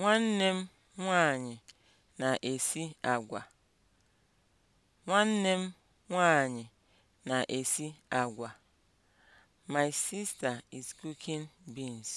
Nwanne m nwanyị na-esi agwa. na-esi agwa. My sister is cooking beans.